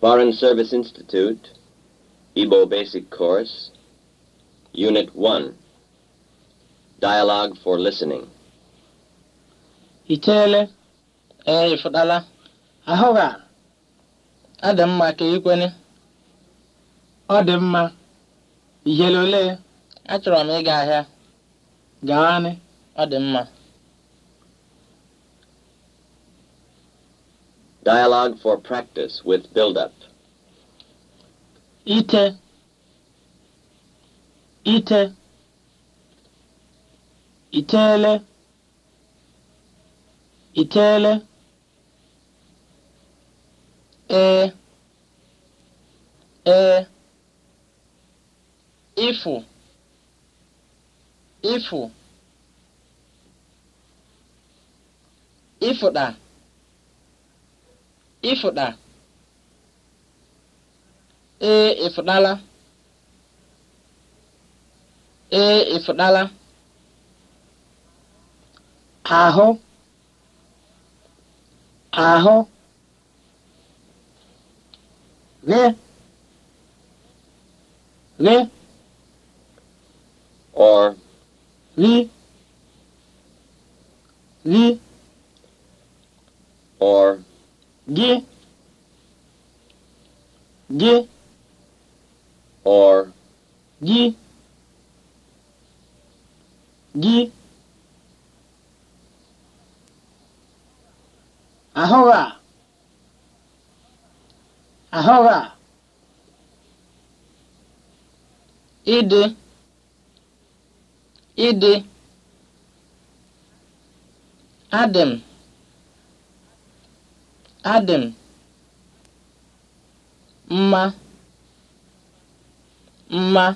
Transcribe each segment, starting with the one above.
Foreign Service Institute, Igbo Basic Course, Unit 1, Dialogue for Listening. Itele, ee ịfụtala, ahụ ga, ọ dị mma ka ikwene, ọ dị mma, ihele ole, achọrọ m ịga ahịa, gaanị, ọ dị Dialogue for practice with build-up. Ite. Ite. Itele. Itele. E. E. Ifu. Ifu. Ifu da. ịfụda ee ịfụdala ee ịfụdala ahụ ahụ gị gị or gị gị or gị gị or gị gị ahụghị a ahụghị a ịdị ịdị adị m Adị mma, mma,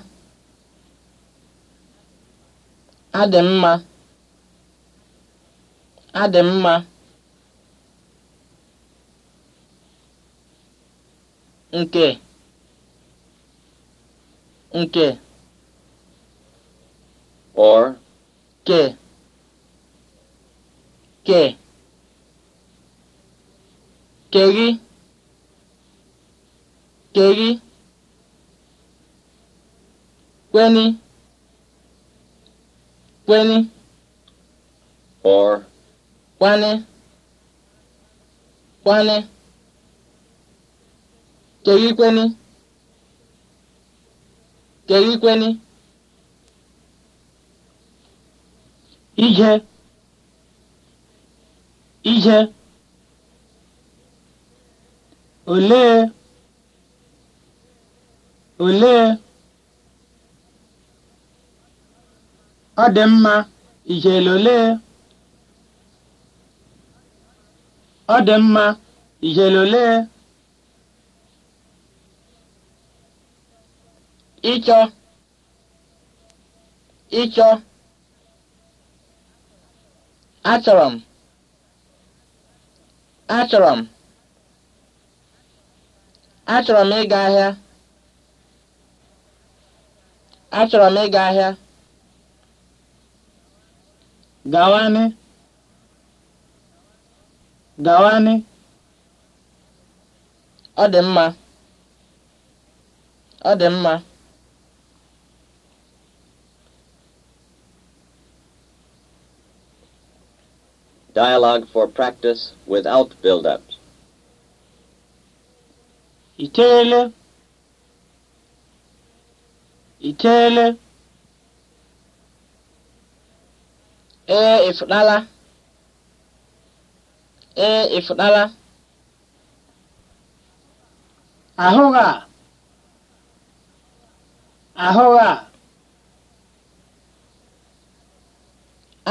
adị mma, adị mma, nke, nke, or, ke, ke. kèghi kèghi kweni kweni or kwani kwani kèghi kweni kèghi kweni ije ije olee olee ọ dị mma ijele olee ọ dị mma ijele olee ịchọ ịchọ achọrọ m achọrọ m Achọrọ m ịga ahịa. Achọrọ m ịga ahịa. Gawanị. Gawanị. Ọ dị mma. Ọ dị mma. Dialogue for practice without build-ups. iteele iteghete ee ịfụtala ee ịfụtala ahụghị a ahụghị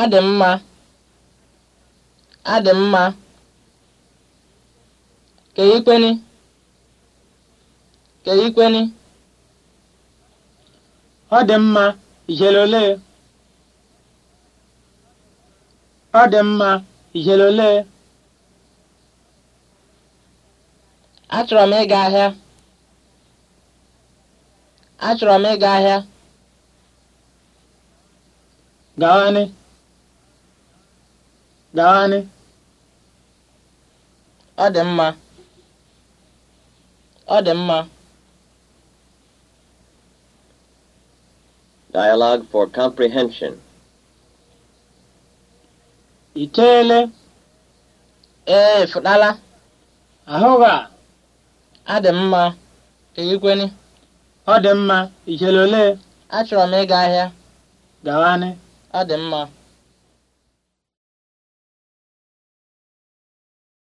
adị mma adị ikpeni ka ikweni ọ dị mma ijelole ọ dị mma ijelole achọrọ m ịga ahịa achọrọ m ịga ahịa gawani gawani ọ dị mma ọ dị mma Dialogue for Comprehension. Iteele. Ee, fudala Ahụba. A dị mma. Eyikwenu. Ọ dị mma. Ijele ole? Achọrọ m ịga ahịa. Gawanị. Ọ dị mma.